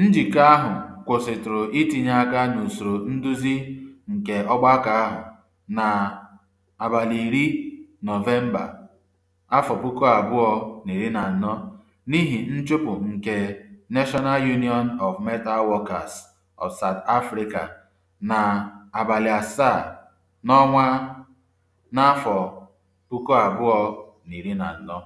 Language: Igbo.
Njikọ ahụ kwụsịtụrụ itinye aka n'usoro nduzi nke ọgbakọ ahụ na abalị Nọvemba afọ puku abụọ na iri na anọ n'ihi nchụpụ nke National Union of Metal Workers of South Africa na abalị asaa n'ọnwa n'afọ puku abụọ na iri na anọ.